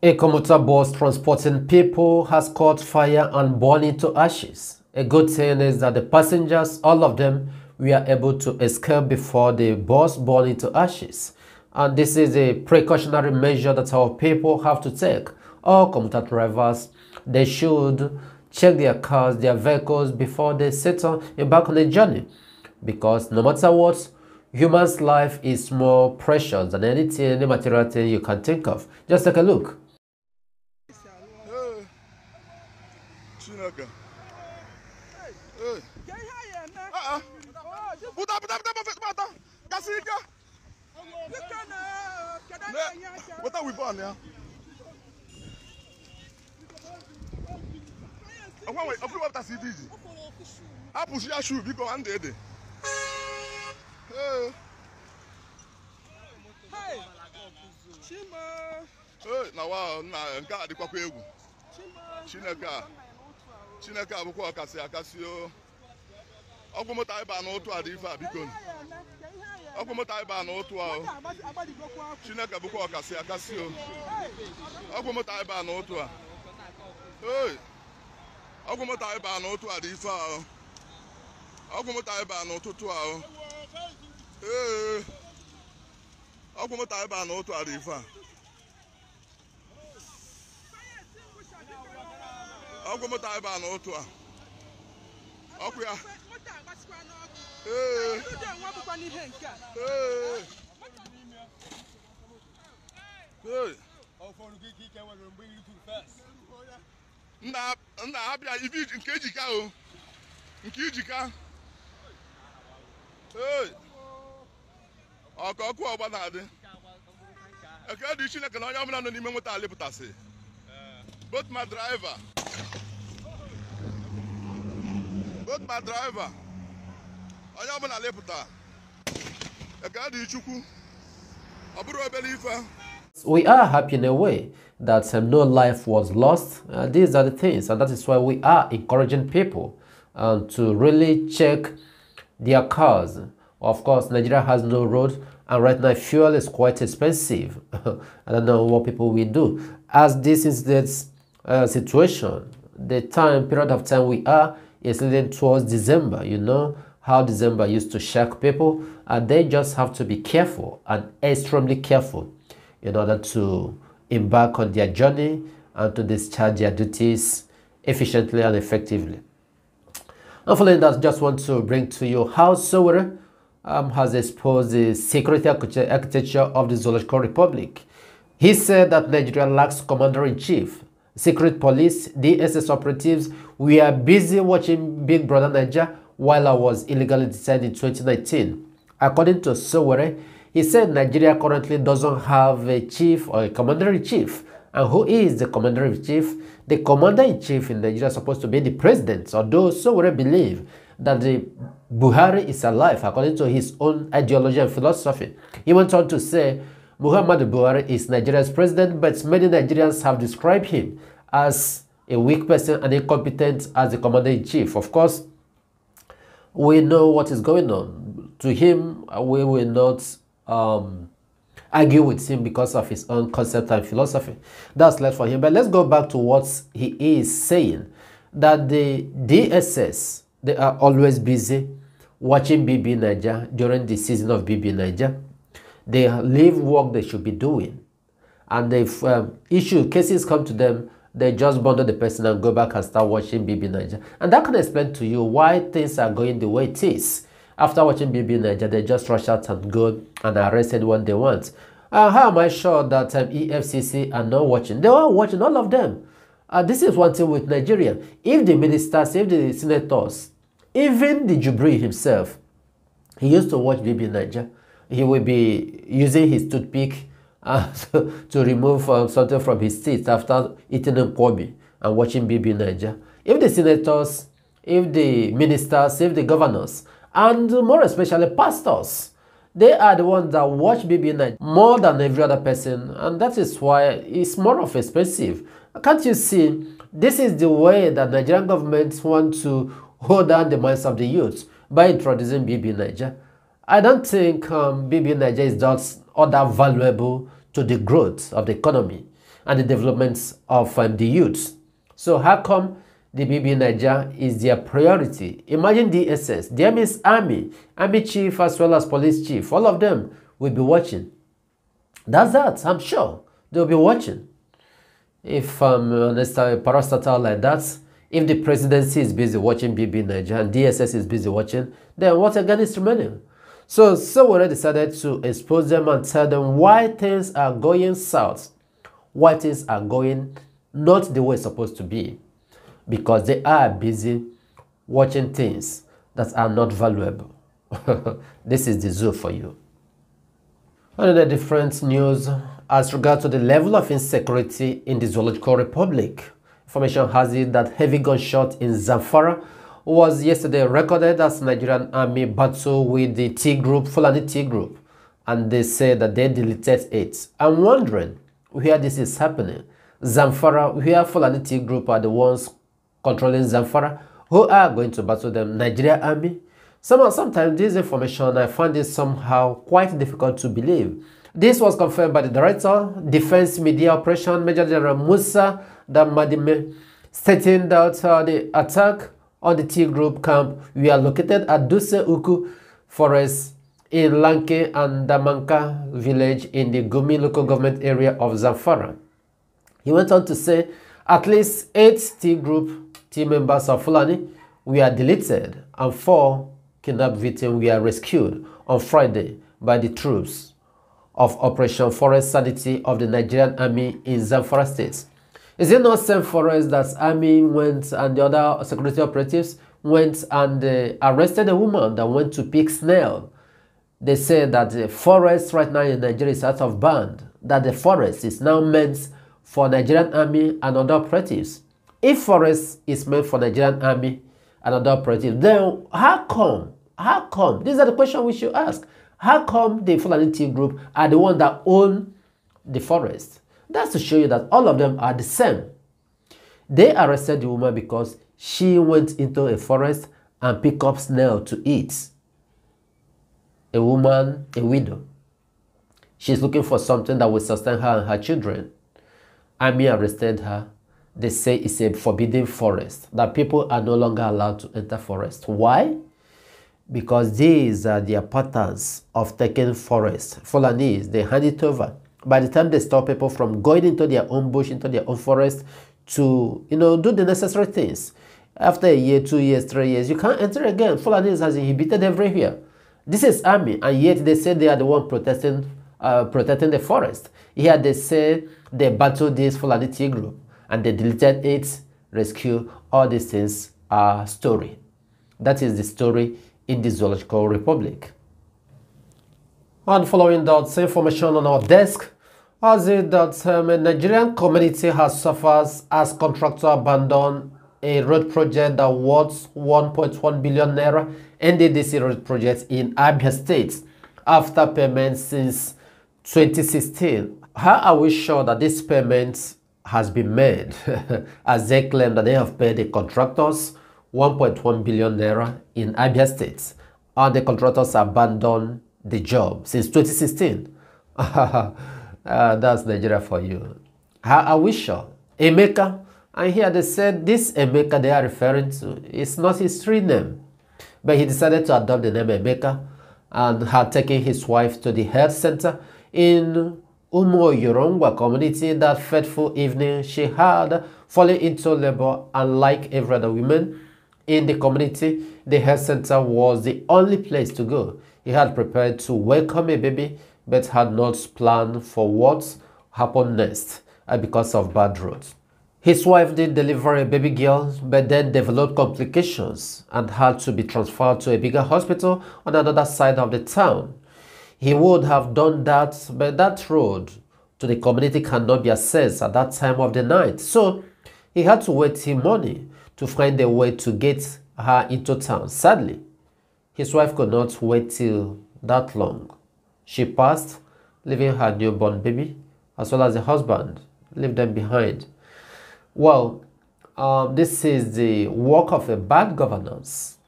A commuter bus transporting people has caught fire and burned into ashes. A good thing is that the passengers, all of them, were able to escape before the bus burned into ashes. And this is a precautionary measure that our people have to take. All commuter drivers, they should check their cars, their vehicles before they set on embark eh, on a journey. Because no matter what, human's life is more precious than anything, any material thing you can think of. Just take a look. gangan. Buta buta buta buta buta kasi ika. Buta wipo ani ya. Ọkwa wee ọfụrụ wapụta si dị ji. Apụsụ ya shuu biko andị ede. Chima. Na wa na nke a dịkwakwa egwu. Chineke a. chineke abụkwa ọkasị akasị o ịba na ụtụ a dị ife a biko ọgwụmụta ịba na ụtụ a chineke bụkwa ọkasị akasị o ịba na ụtụ a Ee, ọgwụmụta ịba na ụtụ a dị ife ịba na ụtụtụ a ee ọgwụmụta ịba na ụtụ a dị ife a ọgwụ moto ebe a n'otu a ọkụ ya ee nna ha bịa ibe nke ijika o nke ijika ee ọkụ ọkụ ọgba na-adị ekele dị chineke na onye ọbụla nọ n'ime moto alịpụtasị both my driver both my driver onye ọbụla We are happy in a way that um, no life was lost. Uh, these are the things, and that is why we are encouraging people um, to really check their cars. Of course, Nigeria has no road, and right now fuel is quite expensive. I don't know what people will do. As this is the uh, situation, the time period of time we are it's leading towards December, you know how December used to shock people, and they just have to be careful and extremely careful in order to embark on their journey and to discharge their duties efficiently and effectively. And following that, just want to bring to you how Sowore um, has exposed the security architecture of the Zoological Republic. He said that Nigeria lacks commander in chief secret police, DSS operatives. We are busy watching Big Brother Nigeria while I was illegally detained in 2019. According to Sowere, he said Nigeria currently doesn't have a chief or a commander-in-chief. And who is the commander-in-chief? The commander-in-chief in Nigeria is supposed to be the president, although Sowere believe that the Buhari is alive according to his own ideology and philosophy. He went on to say, Muhammad Buhari is Nigeria's president, but many Nigerians have described him as a weak person and incompetent as the commander-in-chief. Of course, we know what is going on. To him, we will not um, argue with him because of his own concept and philosophy. That's left for him. But let's go back to what he is saying, that the DSS, they are always busy watching BB Niger during the season of BB Niger they leave work they should be doing. And if um, issue cases come to them, they just bundle the person and go back and start watching BB Niger. And that can explain to you why things are going the way it is. After watching BB Niger, they just rush out and go and arrest anyone they want. Uh, how am I sure that um, EFCC are not watching? They are watching, all of them. Uh, this is one thing with Nigeria. If the ministers, if the senators, even the Jubri himself, he used to watch BB Niger he will be using his toothpick uh, to remove uh, something from his teeth after eating Nkomi and watching BB Niger. If the senators, if the ministers, if the governors, and more especially pastors, they are the ones that watch BB Niger more than every other person, and that is why it's more of expensive. Can't you see? This is the way that Nigerian governments want to hold down the minds of the youth by introducing BB Niger. I don't think um, BB Niger is just all that valuable to the growth of the economy and the development of um, the youth. So how come the BB Niger is their priority? Imagine the the army, army chief as well as police chief, all of them will be watching. That's that, I'm sure they'll be watching. If um, a parastatal like that, if the presidency is busy watching BB Niger and DSS is busy watching, then what again is remaining? So Sowore decided to expose them and tell them why things are going south, why things are going not the way it's supposed to be, because they are busy watching things that are not valuable. this is the zoo for you. Another different news as regards to the level of insecurity in the Zoological Republic. Information has it that heavy gunshot in Zamfara was yesterday recorded as Nigerian army battle with the T group, Fulani T group, and they say that they deleted it. I'm wondering where this is happening. Zamfara, where Fulani T group are the ones controlling Zamfara, who are going to battle them? Nigeria army? Somehow, sometimes this information, I find it somehow quite difficult to believe. This was confirmed by the director, Defense Media Operation, Major General Musa Damadime, stating that uh, the attack or the T group camp we are located at Duse Uku Forest in Lanke and Damanka village in the Gumi local government area of Zamfara. He went on to say at least eight T group team members of Fulani were deleted and four kidnapped victims were rescued on Friday by the troops of Operation Forest Sanity of the Nigerian Army in Zamfara State. Is it not same for that army went and the other security operatives went and uh, arrested a woman that went to pick snail? They say that the forest right now in Nigeria is out of band, that the forest is now meant for Nigerian army and other operatives. If forest is meant for Nigerian army and other operatives, then how come? How come? These are the questions we should ask. How come the Fulani group are the one that own the forest? That's to show you that all of them are the same. They arrested the woman because she went into a forest and picked up snail to eat. A woman, a widow. She's looking for something that will sustain her and her children. Army arrested her. They say it's a forbidden forest, that people are no longer allowed to enter forest. Why? Because these are their patterns of taking forest. Fulanese, they hand it over by the time they stop people from going into their own bush, into their own forest to, you know, do the necessary things. After a year, two years, three years, you can't enter again. Fulanis has inhibited everywhere. This is army, and yet they say they are the one protesting, uh, protecting the forest. Here they say they battled this Fulani T group, and they deleted it, rescue, all these things are story. That is the story in the Zoological Republic and following that information on our desk as it that um, a Nigerian community has suffered as contractor abandoned a road project that was 1.1 billion naira NDDC road project in Abia State after payment since 2016. How are we sure that this payment has been made as they claim that they have paid the contractors 1.1 billion naira in Abia State and the contractors abandoned the job since 2016. uh, ah, that's Nigeria for you. How are we sure? Emeka. And here they said this Emeka they are referring to is not his real name. But he decided to adopt the name Emeka and had taken his wife to the health center in Umo Yorongwa community that fateful evening. She had fallen into labor and like every other woman in the community, the health center was the only place to go. He had prepared to welcome a baby, but had not planned for what happened next uh, because of bad roads. His wife did deliver a baby girl, but then developed complications and had to be transferred to a bigger hospital on another side of the town. He would have done that, but that road to the community cannot be accessed at that time of the night. So he had to wait till morning to find a way to get her into town. Sadly, his wife could not wait till that long. She passed, leaving her newborn baby as well as the husband, leave them behind. Well, um, this is the work of a bad governance.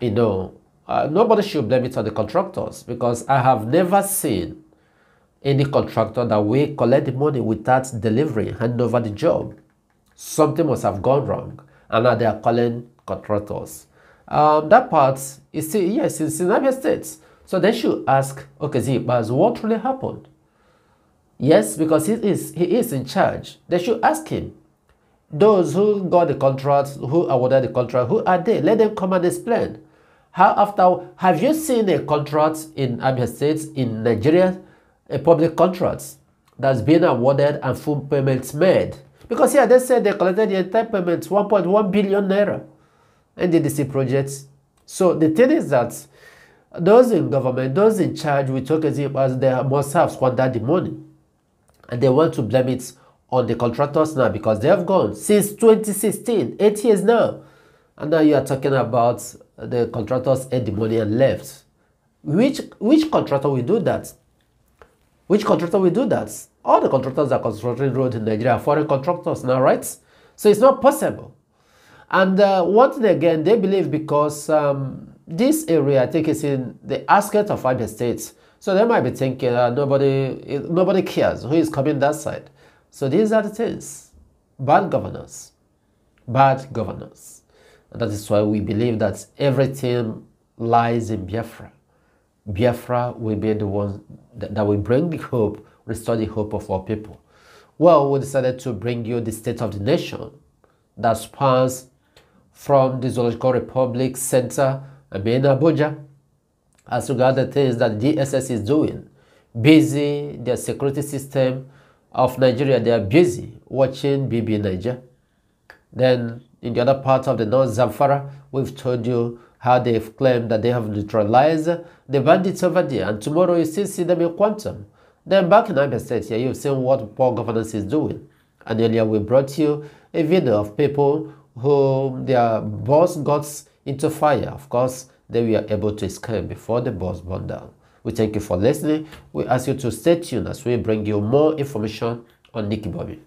You know, uh, nobody should blame it on the contractors because I have never seen any contractor that will collect the money without delivering, hand over the job. Something must have gone wrong, and now they are calling contractors um, that part is still, yes, it's in the United States. So they should ask, okay, Z, but what really happened? Yes, because he is, he is in charge. They should ask him. Those who got the contract, who awarded the contract, who are they? Let them come and explain. How after, have you seen a contract in Abia States, in Nigeria, a public contract that's been awarded and full payments made? Because here yeah, they said they collected the entire payments, 1.1 billion naira. NDDC projects. So the thing is that those in government, those in charge with Tokesim as they must have squandered the money. And they want to blame it on the contractors now because they have gone since 2016, eight years now. And now you are talking about the contractors ate the money and left. Which which contractor will do that? Which contractor will do that? All the contractors are constructing roads in Nigeria foreign contractors now, right? So it's not possible. And uh, once again, they believe because um, this area, I think, is in the outskirts of other states, So they might be thinking uh, nobody, nobody cares who is coming that side. So these are the things bad governance, bad governance. And that is why we believe that everything lies in Biafra. Biafra will be the one that, that will bring the hope, restore the hope of our people. Well, we decided to bring you the state of the nation that spans from the Zoological Republic Center in Abuja as regards the things that DSS is doing. Busy, their security system of Nigeria, they are busy watching BB Niger. Then in the other part of the North Zamfara, we've told you how they've claimed that they have neutralized the bandits over there. And tomorrow you still see them in quantum. Then back in Abia State here, you've seen what poor governance is doing. And earlier we brought you a video of people who their boss got into fire. Of course, they were able to escape before the boss burned down. We thank you for listening. We ask you to stay tuned as we bring you more information on Nicky Bobby.